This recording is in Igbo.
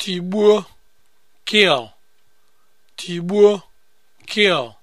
tigbuo kill tigbuo kill